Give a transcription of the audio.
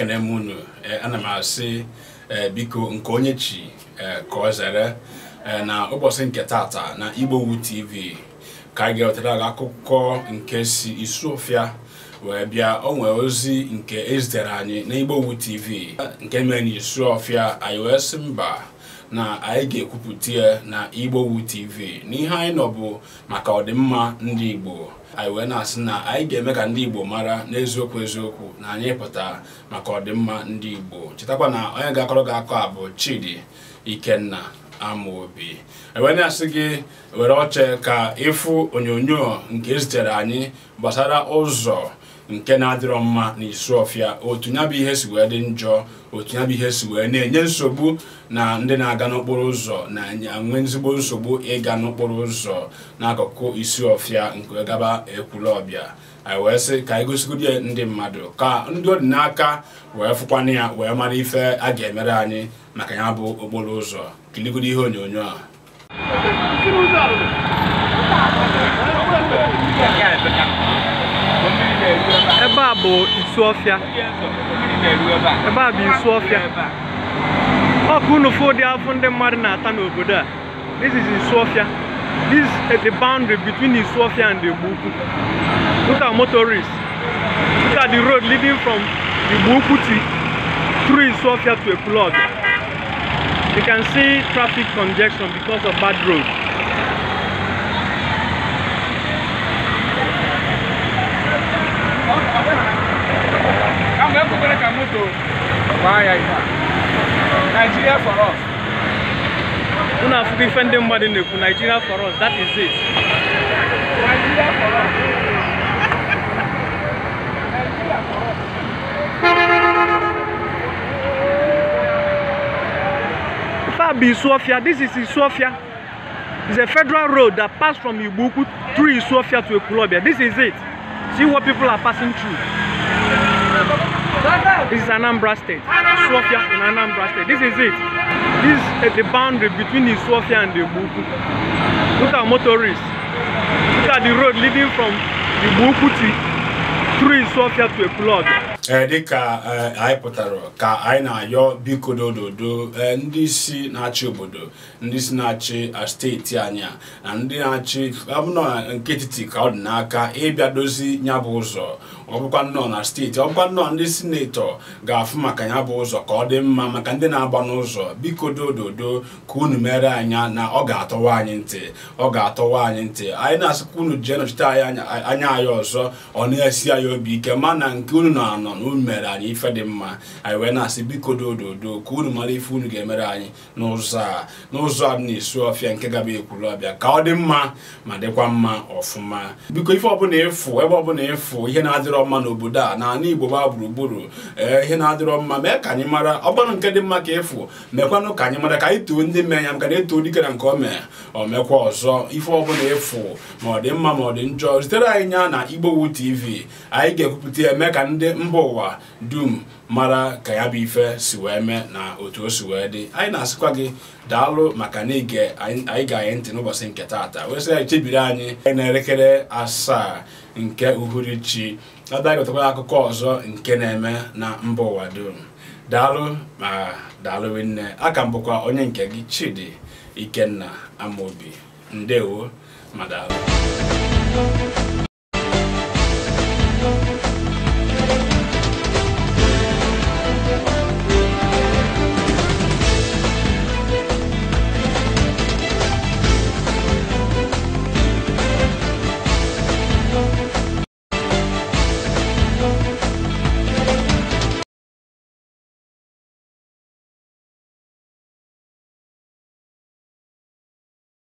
ekene m unu eh, ana m asị eh, biko nke onye chi eh, ka ọ na ụbọchị nke tata na igbowu tv ka anyị ga-ewetara gị akụkọ nke si Isuofia wee bịa onwe ozi nke ezitere anyị na igbowu tv nke mere na Isuofia anyị wee mba na anyị ga-ekwupụta ya na wu tv n'ihe anyị nọ bụ maka ọdịmma ndị igbo anyị wee na-asị na anyị ga-eme ka ndị igbo mara n'eziokwu eziokwu na anyị pụta maka ọdịmma ndị igbo chetakwa na onye ga-akọrọ gị akọ abụ bụ chidi ikenna amaobi e wee na-asị gị were oche ka ịfụ onyonyo nke ezitere anyị gbasara ụzọ nke na-adịrọ mma n'ịsụ ọfịa otu ya bụ ihe si wee dị njọ otu ya bụ ihe si wee na-enye nsogbu na ndị na-aga n'okporo ụzọ na-enwe ezigbo nsogbu ịga n'okporo ụzọ n'akụkụ isi ọfịa nke gaba ekwulọbịa ọbịa wee sị ka anyị gosigodi ndị mmadụ ka ndị ọdịnaka wee fụkwana ya wee mara ife a ga-emere anyị maka ya bụ okporo ụzọ kiligodi ihe onyonyo a Yeah, baabụ nsu ọfịa ebe a bụ nsu ọfịa ọkụ unufu ụdị afọ ndị mmadụ na-ata n'obodo a this is nsu ọfịa this is the boundary between nsu ọfịa and igbo ukwu look at motorists look at the road leading from igbo ukwu to through nsu ọfịa to ekulọd you can see traffic congestion because of bad roads na kupereka moto waya ina Nigeria for us We have ife ndị mmadụ na-ekwu Nigeria for us that is it Nigeria for us Nigeria for us this is Sofia. It's a federal road that passed from Ibuku through Sofia to Ekulobia. This is it. See what people are passing through. This is Anambra State. swafia in Anambra State. This is it. This is the boundary between the swafia and the Buku. Look at motorists. Look at the road leading from the Buku to through swafia to a Ekulog. Eh, dịka eh, anyị pụtara ka anyị na-ayọ biko dododo eh, ndị isi na-achị obodo ndị isi na-achị steeti anyị na ndị na-achị abụna nke etiti ka ọ dị n'aka ịbịa dozi bụ ụzọ ọbụkwa nnọọ na steeti ọbụkwa nọ nnọọ ndị sinetọ ga-afụ maka ya bụ ụzọ ka ọ dị mma maka ndị na-agba n'ụzọ biko dododo ka unu mere anya na ọ ga-atọwa anyị ntị ọ ga-atọwa anyị ntị anyị na-asịkwa unu jee nọchite anyị anya anyị ọzọ ọ na-esi anyị obi ike na nke unu na-anọ na unu mere anyị ife dị mma anyị wee na-asị biko dododo ka unu mara ife unu ga-emere anyị n'ụzọ a n'ụzọ a na-esu ọfịa nke gaba ekwuru ọbịa ka ọ dị mma ma dịkwa mma ọfụma biko ife ọbụla ebe ọbụla ịfụ ihe na-adịrọ na-adịrọ mma n'obodo a na igbo gbaa gburugburu ee ihe na-adịrọ mma mee ka anyị mara ọgbanụ nke dị mma ka ịfụ mekwanụ ka anyị mara ka anyị too ndị mee ya maka na eto dike na nke o mee o mekwa ọzọ ife ọbụla ịfụ ma ọ dị mma ma ọ dị njọ zitere anyị ya na igbowu tv anyị ga-ekwupụta ya mee ka ndị mba ụwa dum mara ka ya bụ ife si wee mee na otu o si wee dị anyị na-asịkwa gị daalụ maka na ige anyị ga-anyị ntị n'ụbọchị nke taata wee sị anyị chebiri anyị na-elekere asaa nke uhuruchi abịa gotakwala akụkọ ọzọ nke na-eme na mba ụwa dum daalụ ma daalụ nne aka mbụkwa onye nke gị Chidi Ikenna Amobi ndewo ma daalụ